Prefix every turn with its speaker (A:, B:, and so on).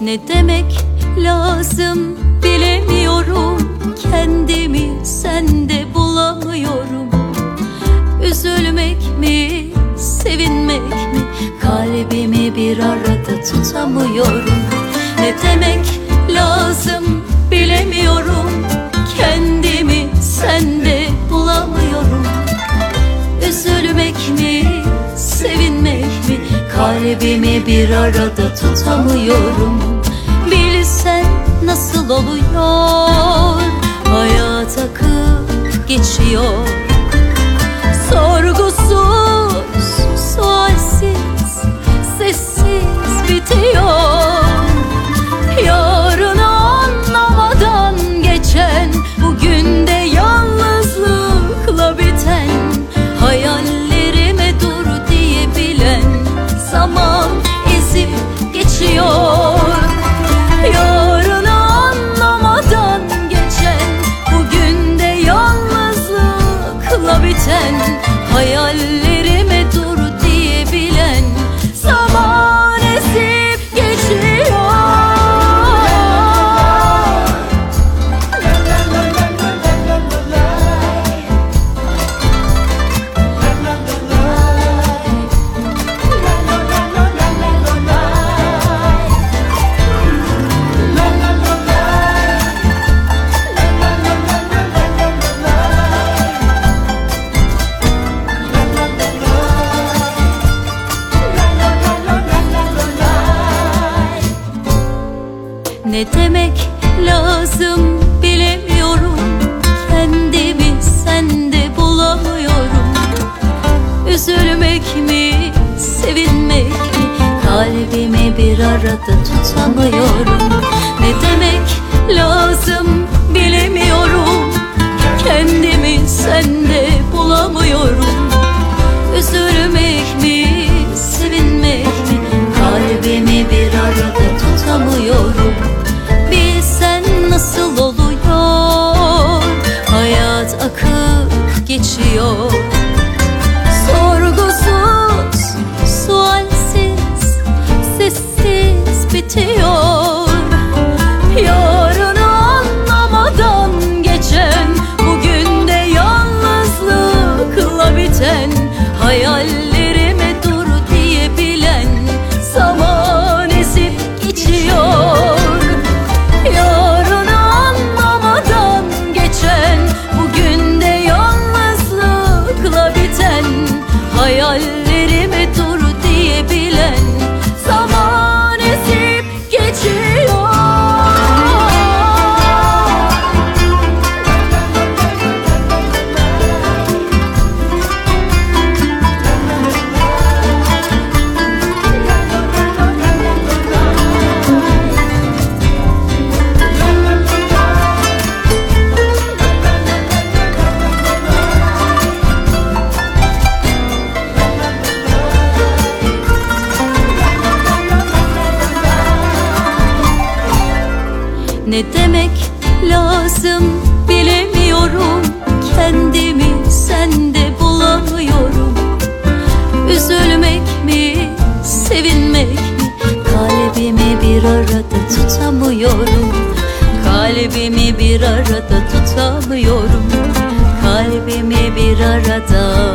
A: Ne demek lazım bilemiyorum Kendimi sende bulamıyorum Üzülmek mi, sevinmek mi Kalbimi bir arada tutamıyorum Kalbimi bir arada tutamıyorum Bilsen nasıl ne demek lazım bilemiyorum Kendimi sende bulamıyorum Üzülmek mi, sevinmek mi Kalbimi bir arada tutamıyorum Ne demek lazım Hayallerime dur diyebilen zaman esip geçiyor Yarını anlamadan geçen Bugün de yalnızlıkla biten Hayal ne demek lazım bilemiyorum Kendimi sende bulamıyorum Üzülmek mi, sevinmek mi Kalbimi bir arada tutamıyorum Kalbimi bir arada